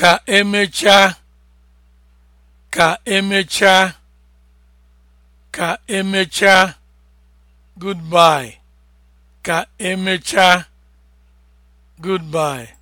ka emechaa ka emechaa ka emechaa goodbye ka emechaa goodbye